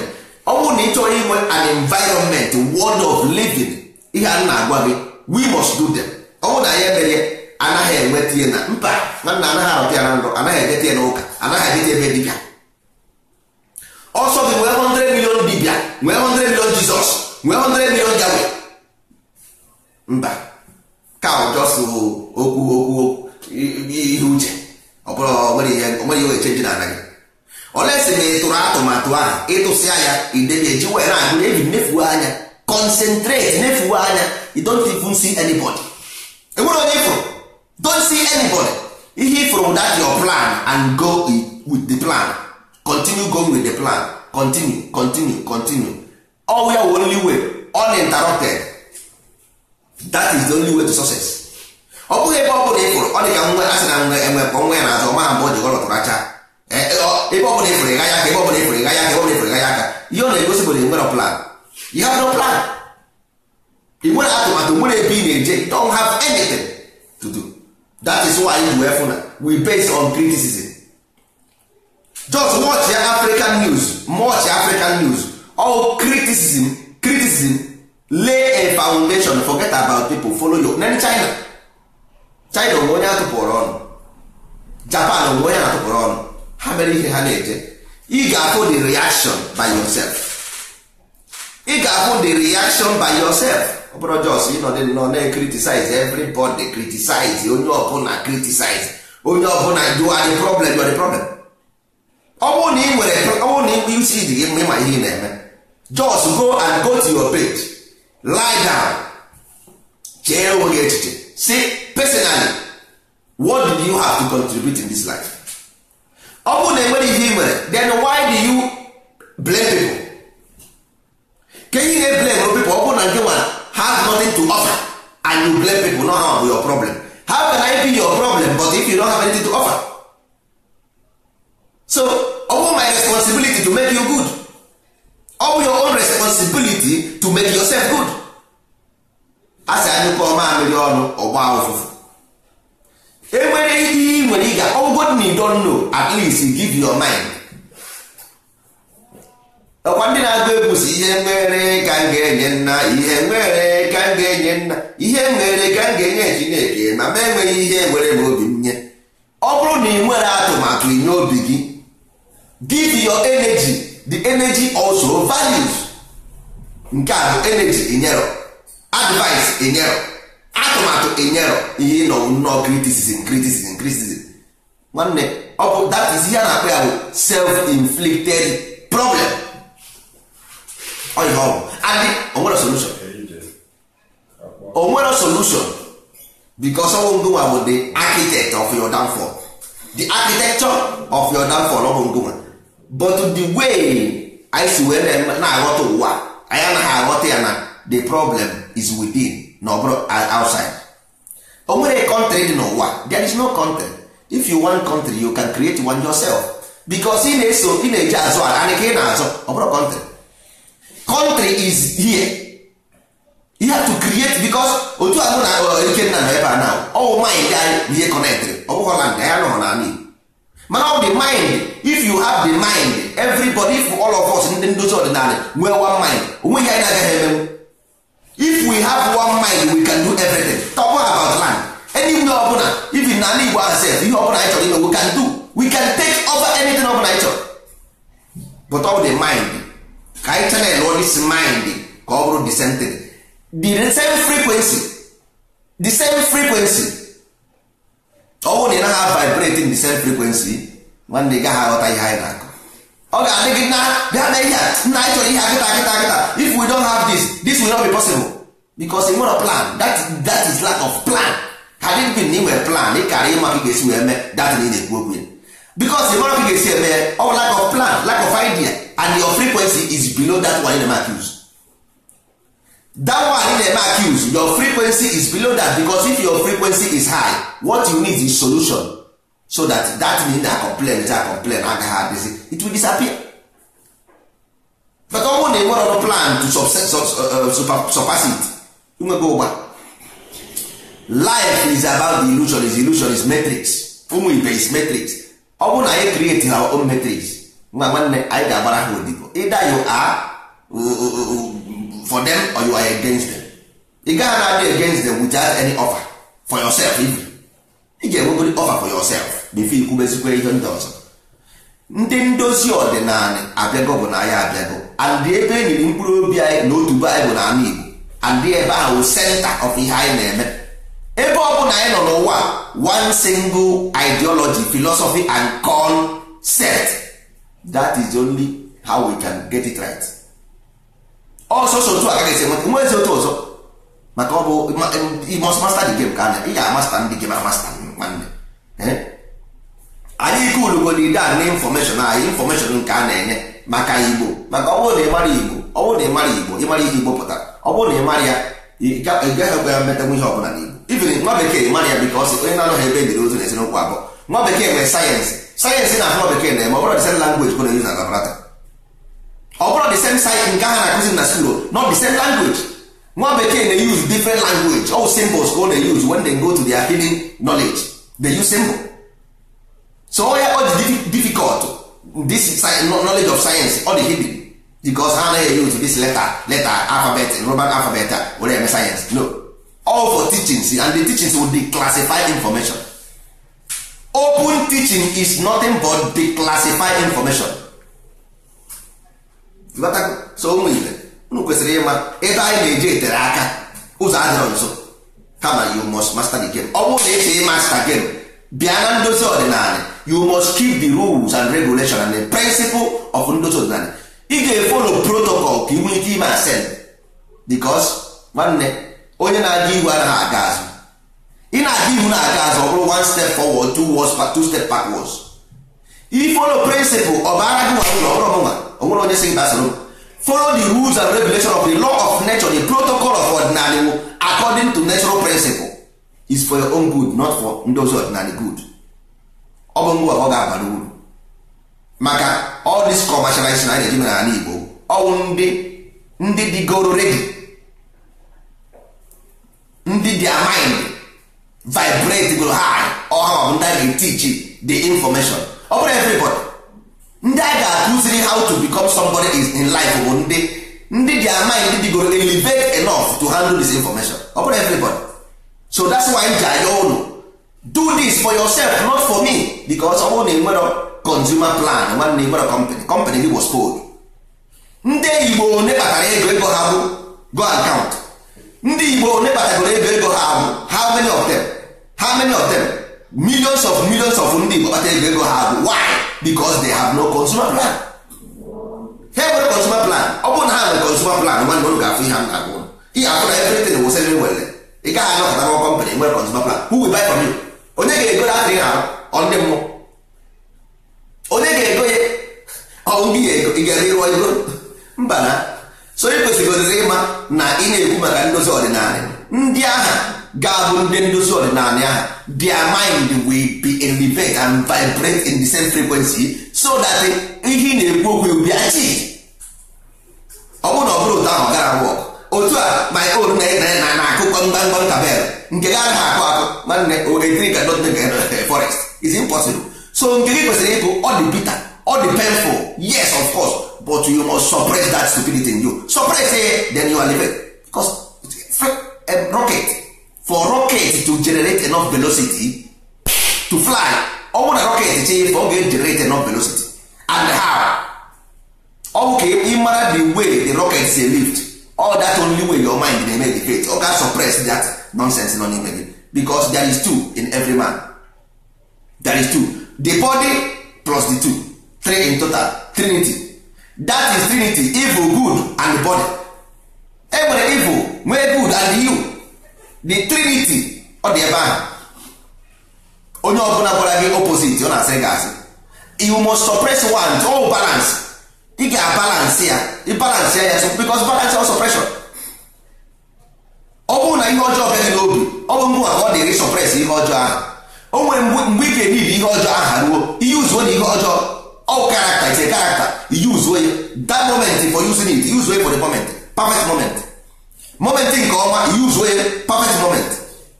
ọ bụrụ na ị chọrọ inwe an environment world of living ihe a na-agwa gị we must do them ọ bụrụ na anyị emere anaghị enweta ihe na mba nwanna anaghị arụta ya na ndụ anaghị edeta ya n'ụka anaghị adịta ebe dibịa ọsọ gị nwee 100 million dibịa nwee 100 million jizọs nwee hundred million jawe mba ka ụjọsụ okwu okwu ihe uche ọ bụrụ onweghị ihe echenji na anaghị olesi na ịtụrụ atụmatụ ahụ ịtụsịa ya ideji wee na-agụ eji nefuo anya concentrate nefuo anya you don't even see anybody enwere onye ifụrụ don't see anybody ihe ifụrụ that your plan and go with the plan continue going with the plan continue continue continue all we are only way uninterrupted that is the only way to success ọ bụghị ebe ọ bụla ị pụrụ ọ dị ka nwe asị na nwe enwe ka nwe ya na-azụ ma mgbe ọ jikọ lọtụrụ acha e, ebe ọ bụla ịfụrụ ịga ya aka ebe ọ bụla ịfụrụ ịga ya aka ebe ọ bụla ịfụrụ ịga ya aka ihe ọ na-egosi bụ na ị nwere plan you have no plan ị nwere atụmatụ nwere ebe ị na-eje don have anything to do that is why you were funa we base on criticism just watch ya African news watch African news all criticism criticism lay a foundation forget about people follow your nen China China onwe onye atụpụrụ ọnụ Japan onwe onye atụpụrụ ọnụ ha mere ihe ha na-eje ị ga-afụ the reaction by yourself ị ga-afụ the reaction by yourself ọ bụrụ jos ịnọdị nọ na-criticize everybody criticize onye ọbụla criticize onye ọbụla na are the problem you are problem ọ bụrụ na ị nwere ọ bụrụ na ị bụ isi dị gị mma ihe ị na-eme just go and go to your bed lie down chee onwe gị echiche si personally what did you have to contribute in this life ọ bụrụ na enwere ihe nwere then why do you blame people Can you na blame people ọ bụrụ na nke have nothing to offer and you blame people not have your problem how can I be your problem but if you don't have anything to offer so ọ bụrụ my responsibility to make you good ọ bụ your own responsibility to make yourself good a sị anyị kọọ mamịrị ọnụ ọgba ụfụfụ enwere ihe ị nwere ịga ọgwụgwọ dị na don't know at least give your mind ọkwa ndị na-agụ egwu si ihe nwere ka m ga-enye nna ihe nwere ka m ga-enye nna ihe nwere ka m ga-enye Chineke ma ma enweghị ihe nwere m obi m nye ọ bụrụ na ị nwere atụmatụ inye obi gị give your energy the energy also values nke a bụ energy enyero advice enyero atụmatụ enyero ihe nọ nnọọ criticism criticism criticism nwanne ọ bụ that is ihe a na-akpọ ya bụ self-inflicted problem ọ ihe ọ adị onwere solution onwere solution because ọnwụ ngụnwa bụ the architect of your downfall the architecture of your downfall ọ bụ but the way anyị si wee na-aghọta ụwa anyị anaghị aghọta ya na the problem is within uh, na ọ bụrụ outside o nwere country dị n'ụwa there is no country if you want country you can create one yourself because ị na-eso ị na-eji azụ ala anyị ka ị na-azụ ọ bụrụ country country is here you have to create because otu a na uh, ikenna nọ ebe a na ọwụ nwaanyị dị anyị ihe connectry ọ bụghị na anyị nọrọ na anyị. mana the mind if you have the mind everybody if all of us ndị nduzi ọdịnala nwee one mind onweghị anyị na-agaghị emenwu if we have one mind we can do everything talk about land anywhere ọbụla even n'ala Igbo ourselves ihe ọbụla anyị chọrọ ime we can do we can take over anything ọbụla anyị chọrọ but all the mind ka anyị channel all this mind ka ọ bụrụ the same thing the same frequency the same frequency ọnwụ oh, na ị naghị vibrate in the same frequency nwanne ị gaghị aghọta ihe anyị na-akọ ọ ga-adị gị na bịa na ihe nna anyị chọrọ ihe a kịta kịta if we don't have this this will not be possible because ị nwere plan that, is lack of plan had it been na ị nwere plan ị kara ịma ka ga-esi wee mee that na ị na-ekwu okwu because ị mara ka ga-esi eme ọ bụ lack of plan lack of idea and your frequency is below that one you na-eme use that one na-eme accuse your frequency is below that because if your frequency is high what you need is solution so that that mean na complain ja complain agaghị adịzi it will disappear but ọ bụrụ na ị nwere plan to uh, uh, surpass it nwego ụgba life is about the illusion is illusion is matrix ụmụ ibe is matrix ọ na anyị create our own matrix nwa nwanne anyị ga-agbara ha odibo ịda you are uh, for them or you are against them ị gaghị na-adị against them without any offer for yourself even ị ga-enwegodi offer for yourself before ikwubezikwa ihe ndị ọzọ ndị ndozi ọdịnala abịago bụ na ya abịago and ebe enyiri mkpụrụ obi anyị na otu baịbụl na ala Igbo and ebe ahụ center of ihe anyị na-eme ebe ọ bụla anyị nọ n'ụwa one single ideology philosophy and concept that is only how we can get it right. ọsọsọ otu agaghị esi enweta nwe ezi otu ọzọ maka ọ bụ masta dị gem ka anya ị ga-amasta ndị gem amasta nwanne eh? anyị ike ulugo na ide a na infọmeshọn anyị infọmeshọn nke a na-enye maka igbo maka ọ bụrụ na ị igbo ọ bụrụ na ị igbo ịmara ihe igbo ọ bụrụ na ị ya ị ya ọbụla na igbo nwa bekee ya bikọ ọsị onye na-anọghị ebe edere ozu na abụọ nwa bekee nwere sayensị na na-eme ọ bụrụ ọ bụrụ the same site nke ha na-akụzi na school not the same language nwa bekee na-use different language all symbols ka ọ na-use when they go to their hidden knowledge they use symbol so all ya dị difficult this knowledge of science ọ dị hidden because ha anaghị use this letter letter alphabet Roman alphabet were eme science no all for teachings and the teachings will declassify information open teaching is nothing but declassify information so ụmụ ibe unu kwesịrị ịma ebe anyị na-eji etere aka ụzọ adịrọ nso kama you must master the game ọ bụrụ na esi master game bịa na ndozi ọdịnala you must keep the rules and regulation and the principle of ndozi ọdịnala ị ga-efolo protocol ka ị nwee ike ime asen because nwanne onye na-aga ihu anaghị aga azụ ị na-aga ihu na-aga azụ ọ bụrụ one step forward two, two step backwards ifolo principle ọ bara gị nwa ọrụ nwa onwere onye si gbasoro folo the rules and regulation of the law of nature the protocol of ordinary according to natural principle is for your own good not for ndị ọzọ ordinary good ọ bụ ngwa ọ ga-abara uru maka all this commercialization anyị na-eji mere n'ala Igbo ọwụ ndị ndị goro ready ndị dị mind vibrate go high ọha ọ bụ ndị ga-etichi the information ọ bụrụ everybody ndị a ga-akụziri how to become somebody is in life bụ ndị ndị dị ama ndị bigoro elevate enough to handle this information ọ bụrụ everybody so that's why ji anya ụlọ do this for yourself not for me because ọ bụrụ na enwero consumer plan nwanne enwero company company gị was told ndị igbo one kpatara ego ego ha bụ go account ndị igbo one kpatagoro ego ego ha bụ how many of them how many of them millions of millions of ndị Igbo kpata ego ego ha bụ why because they have no consumer plan ha nwere consumer plan ọ bụ na ha nwere consumer plan nwanne ụlọ ga-afụ ihe m na ihe afụ na everything nwere ị gaghị anọkọta nwa kọmpanị nwere consumer plan who will buy from you onye ga-ego ya adịghị arụ onye ga-ego ya ego ị gara ego mba na so ị ịma na ị na-ekwu maka ndozi ọdịnala ndị agha ga-abụ ndị ndozi ọdịnala ahụ their mind will be elevate and vibrate in the same frequency so that ihe na-ekwu okwu ubi achi ọ bụrụ na ọ bụrụ ụtọ ahụ gara wọk otu a my own na na akụkọ mgbamgba nkabel nke gara ha akụ akụ nwanne oetiri ka dot eh, forest is impossible so nke gị kwesịrị ịbụ ọ dị bitter ọ dị painful yes of course but you must suppress that stupidity in you suppress it then you are living because eh, rocket for rocket to generate enough velocity to fly ọ bụrụ na rocket chee ife ọ ga-generate enough velocity and how ọ bụ ka ị mara the way the rocket say lift all that only way your mind na-eme debate ọ ga suppress that nonsense nọ n'ime gị because there is two in every man there is two the body plus the two three in total trinity that is trinity evil good and body enwere evil nwee good and you the trinity ọ dị ebe ahụ onye ọbụla gwara gị opposite ọ na-asị gị asị you must suppress one all balance ị ga-abalance ya ịbalance ya ya so because balance or suppression ọ bụrụ na ihe ọjọọ bịa n'obi ọ bụ mgbe ọ dịrị suppress ihe ọjọọ ahụ o nwere mgbe ị ga-ebibi ihe ọjọọ ahụ ruo ihe uzuo na ihe ọjọọ ọ karakta ite karakta uzuo ya that moment for using it use way for the moment perfect moment moment nke ọma use wey perfect moment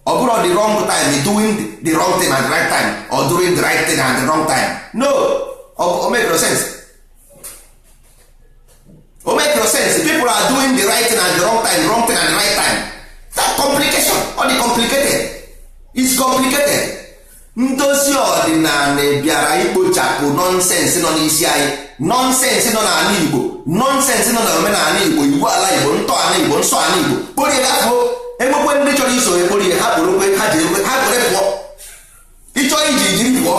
ọ bụrụ the wrong time doing the wrong thing at the right time or doing the right thing at the wrong time no o make no sense o make no sense people are doing the right thing at the wrong time wrong thing at the right time that complication or the complicated is complicated ndozi ọdịnala bịara ikpochapụ nonsense nọ n'isi anyị nọnsensị nọ n'ala igbo nọnsensị nọ na omenala igbo igbo ala igbo ntọala igbo nsọ ala igbo kporie afọ enwekwe ndị chọrọ iso ekporie ha kporokwe ha ji ha pụọ iji jiri pụọ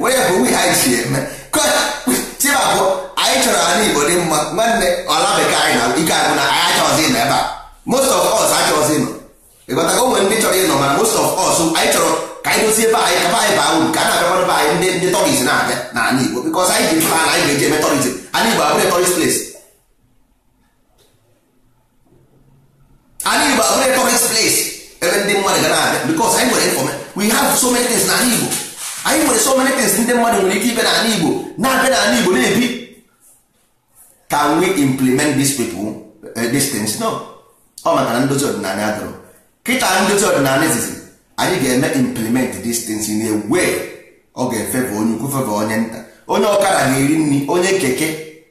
were bụ ha ji eme anyị chọrọ ala igbo dị mma nwanne ala bekee anyị na ike na ịnọ ebe a most of us ka anyị dozie ebe anyị kaba anyị baa uru ka a na-abịakwara be anyị ndị ndị tọriz na-abịa na ala Igbo bikọs anyị ji mkpa na anyị ga-eji eme tọrizm ala Igbo abụrụ tọriz ples ala Igbo abụrụ tọriz ples ebe ndị mmadụ ga na-abịa bikọs anyị nwere infọme we have so many things na ala Igbo anyị nwere so many things ndị mmadụ nwere ike ibe na ala Igbo na-abịa na ala Igbo na-ebi can we implement these people distance? no ọ maka na ndozi ọdịnala adọrọ kịta ndozi ọdịnala izizi anyị ga-eme implement these things in a way ọ ga-efeva onye ukwu feva onye nta onye ọkara ga-eri nri onye keke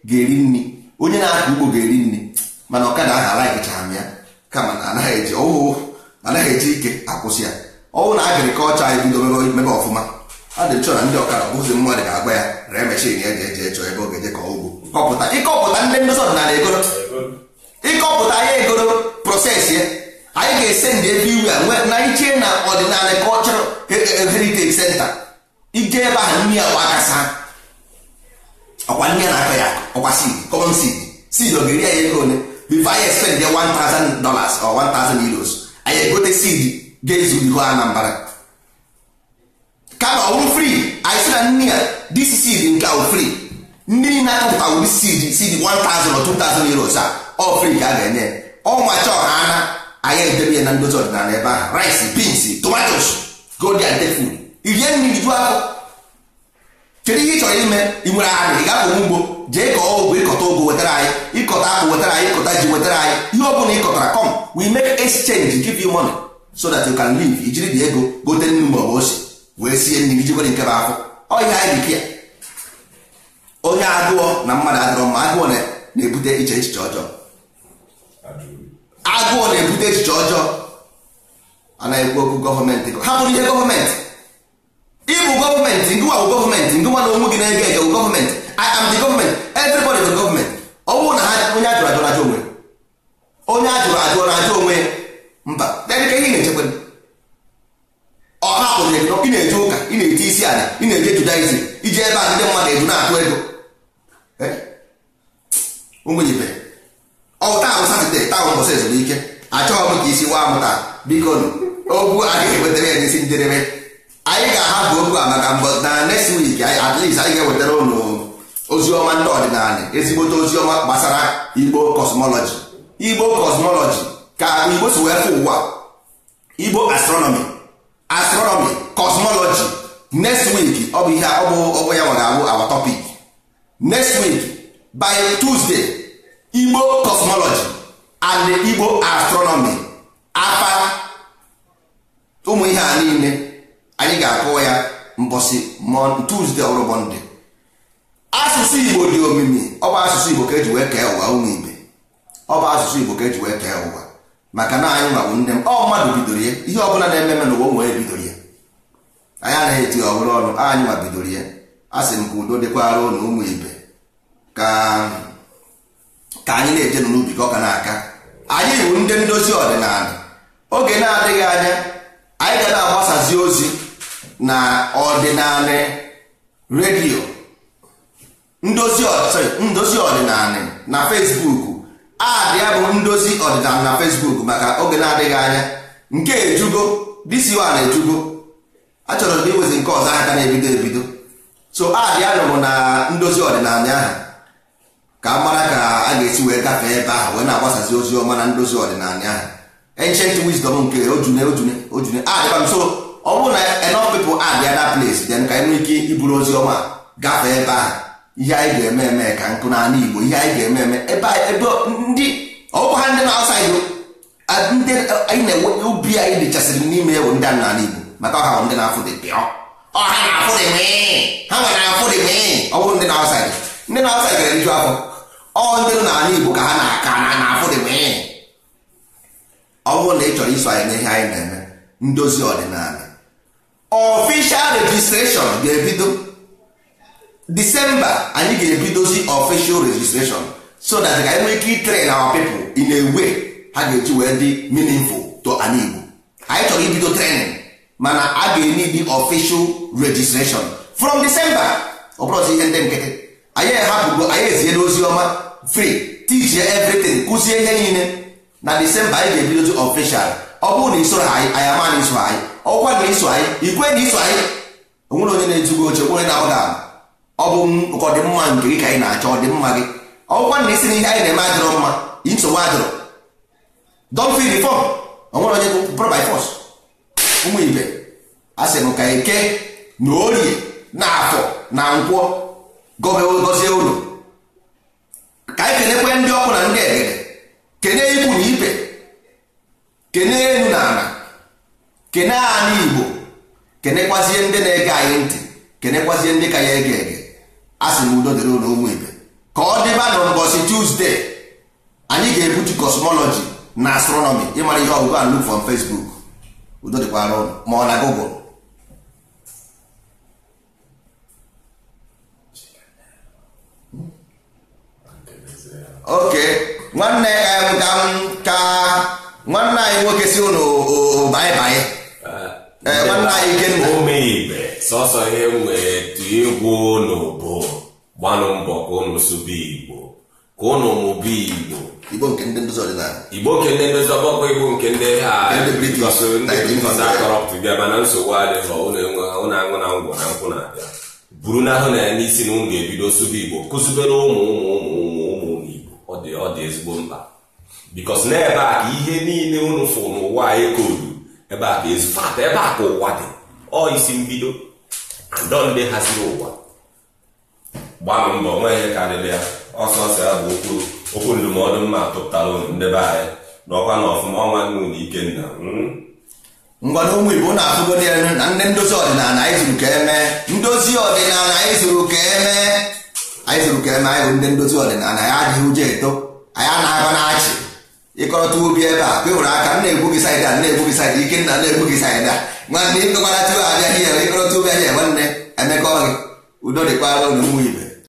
ga-eri nri onye na akụ ugbo ga-eri nri mana ọkada ahụ alaghịchara ya kama na anaghị eji ọwụwụ anaghị eji ike akwụsị ya ọwụ na agrikọlchọ anyị bido mebe ọfụma a dịchọ na ndị ọkada bụzi mmadụ ga-agba ya ree mechin ya ji eje echọ ebe ọ ga-eje ka ugbo ịkọpụta ndị ndozi ọdịnala egoro ịkọpụta ya egoro prosesi ya anyị ga-ese ndị everywhere na iche na ọdịnala cultural heritage center ije ebe ahụ nri agba ọkwa nri na-akọ ya ọkwa seed common seed ọ ga-eri anyị ego anyị bifo anyị 1000 dollars or 1000 euros anyị egote seed ga-ezu anambara kama anyị na nri a this nke ahụ free ndị na-akọpụta 1000 or 2000 euros a ọ ka enye ọnwa ha anyị edebe ya na ndozi ọdịnala ebe ahụ rice beans tomatoes gold and food irie mmiri ju ahụ. kedu ihe ị chọrọ ime ị nwere ahụ ị gapụ ugbo jee kọọ ọgwụ ịkọta ogwu wetara anyị ịkọta akpụ wetara anyị ịkọta ji wetara anyị ihe ọ bụla ịkọtara kọm we make exchange give you money so that you can live ijiri dị ego gote nnu mgbe ọ bụ wee sie nri iji nwere nke bụ afọ ọhịa anyị dịka ya onye agụọ na mmadụ adịrọ mma agụọ na-ebute iche echiche ọjọọ agụụ na-ebute echiche ọjọọ a ekwu okwu gọọmenti ha bụrụ ihe gọọmenti ịbụ gọọmenti ngụwa bụ gọọmenti ngụwa na onwe gị na-ege ege bụ gọọmenti I am the gọọmenti everybody bụ gọọmenti ọ bụrụ na ha onye ajụrụ ajụrụ ajụ onwe onye ajụrụ ajụọ na ajụ onwe mba dedịka ihe na-echekwa ọ hapụrụ ego ị na-eje ụka ị na-eje isi ala ị na-eje judaizm iji ebe a ndị mmadụ eju na-atụ ego ụmụ ibe Satọde taa ụbọchị ezumike achọghị m ka isi waa m taa biko okwu a ga-ewetara ya n'isi njedebe anyị ga-ahapụ okwu a maka mbọ na next week at least anyị ga-ewetara ụlọ ozi ọma ndị ọdịnala ezigbote ozi ọma gbasara Igbo kosmọlọji Igbo kosmọlọji ka Igbo si wee fụ ụwa Igbo astronomi astronomi kosmọlọji next week ọ bụ ihe ọ bụ ya nwa abụ awa topic next week by Tuesday Igbo kosmọlọji. and Igbo astronomy apa ụmụ ihe a niile anyị ga akụ ya mbọsị Tuesday ọhụrụ Mọnde asụsụ Igbo dị omimi ọ bụ asụsụ Igbo ka eji wee kee ụwa ụmụ ibe ọ bụ asụsụ Igbo ka eji wee kee ụwa maka na anyị nwa bụ nne m ọ mmadụ bidoro ya ihe ọbụla na eme eme n'ụwa nwere bidoro ya anyị anaghị eti ọhụrụ ọnụ anyị nwa bidoro ya a sị m ka udo dịkwara ụnụ ụmụ ibe ka anyị na-eje n'ubi ka ọ ga na-aka anyị bụ ndị ndozi ọdịnala oge na-adịghị anya anyị ga na-agbasazi ozi na ọdịnala redio ndozi ọdịnala na Fesbuk adị ya bụ ndozi ọdịnala na Fesbuk maka oge na-adịghị anya nke ejugo disiwa ejugo achọrọ m iwezi nke ọzọ aka na-ebido ebido so adị ya nụrụ na ndozi ọdịnala ahụ ka a ga-esi wee gafee ebe ahụ wee na-agbasazi ozi ọma na ndozi ọdịnala ahụ ancient e wisdom nke ojune ojune ojune adịba ah, m so ọ bụrụ na enough people adịa na place dị ka enwe ike iburu ozi ọma gafee ebe ahụ ihe anyị ga-eme eme ka nkụ n'ala Igbo ihe anyị ga-eme eme ebe ebe ndị ọgwụ ha ndị na-asa Igbo ndị anyị na-enwe ubi anyị dịchasịrị n'ime ewu ndị n'ala Igbo maka ọha bụ ndị na-afụ dị pịọ ọha na-afụ dị mee ha nwere afụ dị mee ọ bụrụ ndị na-asa ndị na-asa ga-eriju afọ ọ ndị n'ala Igbo ka ha na-aka na na-afụ dị mee ọ bụrụ na ị chọrọ iso anyị n'ihe anyị na-eme ndozi ọdịnala official registration ga-ebido December anyị ga-ebidozi official registration so that ka anyị nwee ike train our people ị na-ewe ha ga-eji wee dị meaningful to ala Igbo anyị chọrọ ibido training mana a ga-enye dị official registration from December ọ bụrụzi ihe ndị nkịtị anyị ehapụgo anyị ezie n'ozi ọma free teach everything kụzie ihe niile na Disemba anyị ga-ebidozi official ọ bụrụ na isoro anyị anyị ama na iso anyị ọkwa na iso anyị ikwe na iso anyị onwere onye na-ezugo oche onye na-agbaghị ama ọ bụ ọdịmma nke gị ka anyị na-achọ ọdịmma gị ọkwa na isi na ihe anyị na-eme adịrọ mma nsogbu adịrọ don fi onwere onye bụrụ by force ụmụ ibe a m ka eke na orie na afọ na nkwọ gọọ gọzie ka anyị kenekwe ndị ọkụ na ndị egere kene ikwu na ibe kene elu na ala kene ala igbo kenekwazie ndị na-ege anyị ntị kenekwazie ndị ka ya ege ege a sị na udo dịrị ụlọ ụmụ ibe ka ọ dịba na ụbọchị tuzdee anyị ga-ebutu kosmọlọji na astronomi ịmara ihe ọgụgụ a look from Facebook udo dịkwara ụlọ ma ọ na Google oke nwanne ka nwanne anyị nwoke si ụnụ baịbaị eh, eh, nwanne anyị ikenna omeibe sọsọ ihe wetu egwu ụnụ bụ gbanụ mbọ ka ụnụ sụba igbo ka ụnụ mụba igbo igbo nke ndị ndozi ọdịnala igbo nke ndị ndozi ọgbakọ igbo nke ndị akọrọpụta mana nsogbu adịghị ụnụ aṅụ na ngwọ na nkwụ na-abịa buru n'ahụ na ya n'isi na ụnụ ga-ebido sụba igbo kụzibere ụmụ ụmụ ụmụ ụmụ ụmụ ọ dị ọ dị ezigbo mkpa bikos n'ebe a ka ihe niile unu fụ n'ụwa anyị koodu ebe a ka ezufata ebe a ka ụwa dị ọ isi mbido ndọ ndị haziri ụwa gbanụ mbọ nweghị karịrị ya ọsọ ya bụ okwu okwu ndụmọdụ mma tụpụtara ndebe anyị n'ọkwa na ọfụma ọnwa nnu na ikenna hmm? ngwana ụmụ igbo na-atụgodi elu na ndị ndozi ọdịnala anyị zuru ka eme. ndozi ọdịnala anyị zuru ka emee anyị zụrụ ka eme anyị bụ ndị ndozi ọdịnala anyị adịghị ụjọ eto anyị anaghị na-achị ịkọrọta ubi ebe a ka nwere aka nna-egbu gị saịdị a na-egbu gị saịdị ike nna na-egbu gị saịdị a nwanne ịkọkwara tupu abịaghị ya ịkọrọta ubi anya nwanne emekọ gị udo dịkwara ụlọ ụmụ ibe